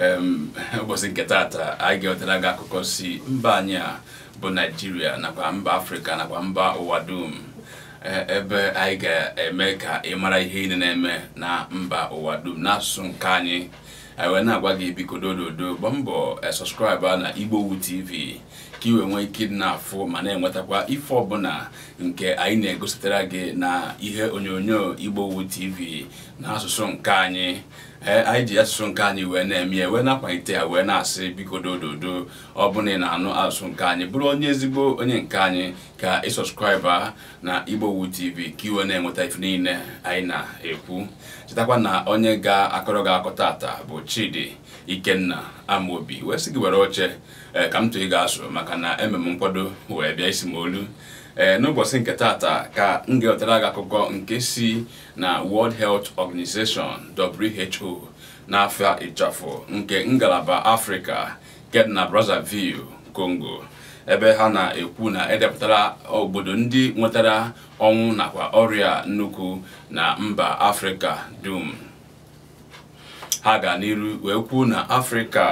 ụbọchị nke taata anyị ga-ewetara gị akụkọ si mba anyị a bụ naijiria nakwa mba afrịka nakwa mba ụwa dum e, ebe anyị ga-eme ka ị mara ihe niile na-eme na mba ụwa dum n'asụsụ nke anyị anyị e, wee na-agwa gị biko dododo bụ mbọ e, sọskraịba na igbowu tv ka ị nwee ike dị na-afụ ma na-enwetakwa ife ọbụla nke anyị na-egosipụtara gị na ihe onyonyo wu tv n'asụsụ nke anyị Eh, anyị ji asụsụ nke anyị wee na-eme ya wee na-akwalite ya wee na-asị biko dododo ọ bụla ị na-anụ asụsụ nke anyị bụrụ onye ezigbo onye nke anyị ka ị sọskraịba na igbowu tv ka iwe na-enweta ife niile anyị na-ekwu chetakwa na onye ga-akọrọ gị akọ tata bụ chidi ikenna amaobi wee sị gị were oche eh, ka m tụọ ị ga-asụ maka na eme m nkwado wee bịa isi m olu ee eh, n'ụbọchị nke taata ka m ga-ewetara gị akụkọ nke si na World Health Organization WHO n'afọ ịchafụ nke ngalaba afrịka nke dị na Brazzaville Congo ebe ha na-ekwu na edepụtara obodo ndị nwetara ọnwụ nakwa ọrịa nnukwu na mba afrịka dum ha ga n'iru wee kwuo na afrịka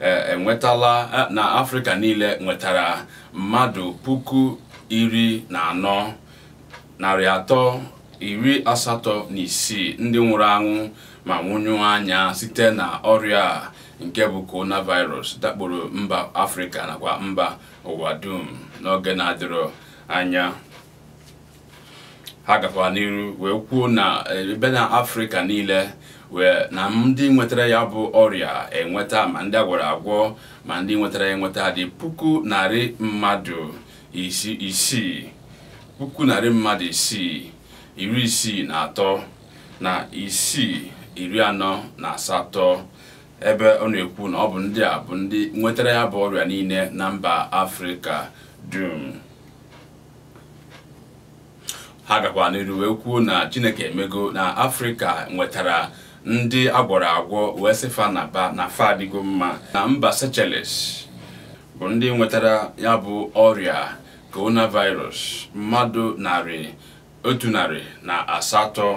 eh, enwetala eh, na afrịka niile nwetara mmadụ puku iri na anọ narị atọ iri asatọ na isii ndị nwụrụ anwụ ma nwụnyụ anya site na ọrịa nke bụ coronavirus dakporo mba afrịka nakwa mba ụwa dum n'oge na-adịrọ anya ha gakwa n'iru wee kwuo na eh, ebe na afrịka niile wee na ndị nwetara ya bụ ọrịa enweta ma ndị agwara agwọ ma ndị nwetara ya enweta dị puku narị mmadụ isii puku narị mmadụ isii iri isii na atọ na isii iri anọ na asatọ ebe ọ na-ekwu na ọ bụ ndị a bụ ndị nwetara ya bụ ọrịa niile na mba afrịka dum ha gakwa n'iru wee kwuo na chineke emego na afrịka nwetara ndị agwọrọ agwọ wee sịfa na ba na fa adịgo mma na mba sechelles. bụ ndị nwetara ya bụ ọrịa coronavirus mmadụ narị otu narị na asatọ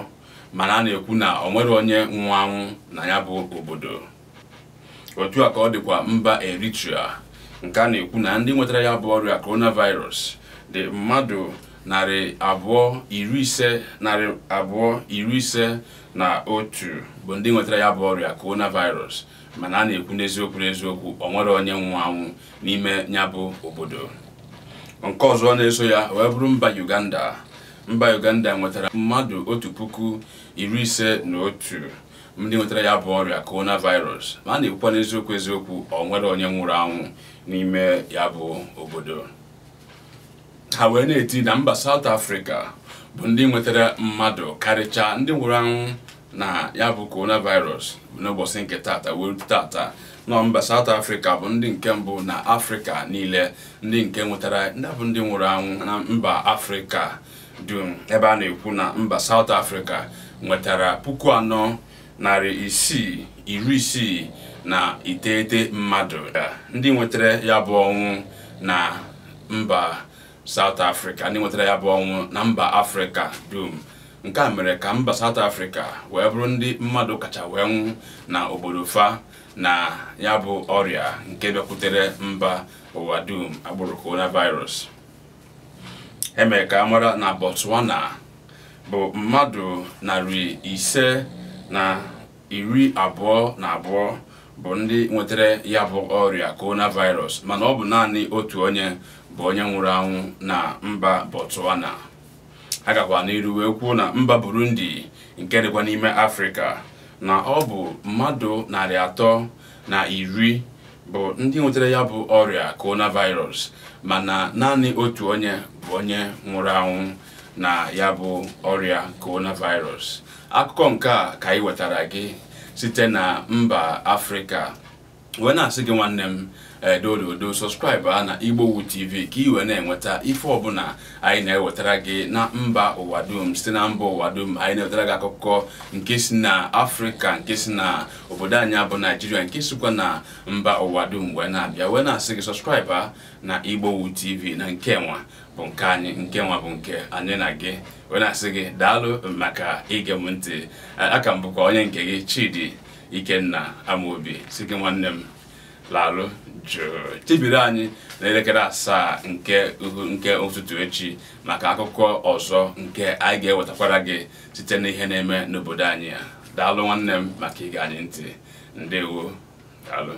mana a na-ekwu na ọ nwere onye anwụ na ya bụ obodo otu a ka ọ dịkwa mba Eritrea nke a na-ekwu na ndị nwetara ya bụ ọrịa coronavirus dị mmadụ narị abụọ iri ise narị abụọ iri ise na otu bụ ndị nwetara ya bụ ọrịa coronavirus mana a na-ekwu n'eziokwu n'eziokwu o nwere onye nwụ anwụ n'ime ya bụ obodo nke ọzọ na-eso ya wee bụrụ mba Uganda mba Uganda nwetara mmadụ otu puku iri ise na otu ndị nwetara ya bụ ọrịa coronavirus ma a na-ekwukwa n'eziokwu eziokwu o nwere onye nwụrụ anwụ n'ime ya bụ obodo ha wee na-eti na mba South Africa bụ ndị nwetara mmadụ karịcha ndị nwụrụ anwụ na ya bụ coronavirus n'ụbọchị nke tata wee tata nọ mba South Africa bụ ndị nke mbụ na afrika niile ndị nke nwetara bụ ndị nwụrụ anwụ na mba Afrịka dum ebe a na-ekwu na mba South Africa nwetara puku anọ narị isii iri isii na iteghete mmadụ ndị nwetara ya bụ ọnwụ na mba South Africa ndị nwetara ya bụ ọnwụ na mba Afrịka dum nke a mere ka mba South Africa wee bụrụ ndị mmadụ kacha wee nwụ na obodo fa na ya bụ ọrịa nke bịakwutere mba ụwa dum agbụrụ coronavirus emere ka amara na Botswana bụ mmadụ narị ise na iri abụọ na abụọ bụ ndị nwetara ya bụ ọrịa coronavirus mana ọ bụ naanị otu onye bụ onye nwụrụ anwụ na mba Botswana ha gakwa n'iru wee kwuo na mba Burundi nke dịkwa n'ime Afrịka na ọ bụ mmadụ narị atọ na iri bụ ndị nwetara ya bụ ọrịa coronavirus mana naanị otu onye bụ onye nwụrụ anwụ na ya bụ ọrịa coronavirus akụkọ nke ka anyị wetara gị site na mba Afrịka wee na-asị gị nwanne m um, edododo uh, sọskraịbụ a uh, na wu tv ka ị wee na-enweta ife ọbụla anyị na-ewetara gị na mba ụwa dum site na mba ụwa dum anyị na-ewetara gị akụkọ nke si na afrịka nke si na obodo anyị bụ naijiria nke sikwa na mba ụwa dum wee na-abịa wee na-asị gị sọskraịbụ uh, na igbowu tv na nke nwa bụ nke anyị nke nwa bụ nke anyị na gị wee na-asị gị daalụ maka ige m ntị aka m bụkwa onye nke gị chidi Ikenna Amobi si gị nwanne m lalụ jụụ chebiri anyị n'elekere asaa nke nke ụtụtụ echi maka akụkọ ọzọ nke anyị ga-ewetakwara gị site n'ihe na-eme n'obodo anyị ya daalụ nwanne m maka ige anyị ntị ndewo daalụ